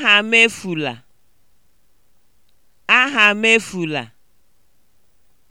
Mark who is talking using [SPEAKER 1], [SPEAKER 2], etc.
[SPEAKER 1] Aha m Aha m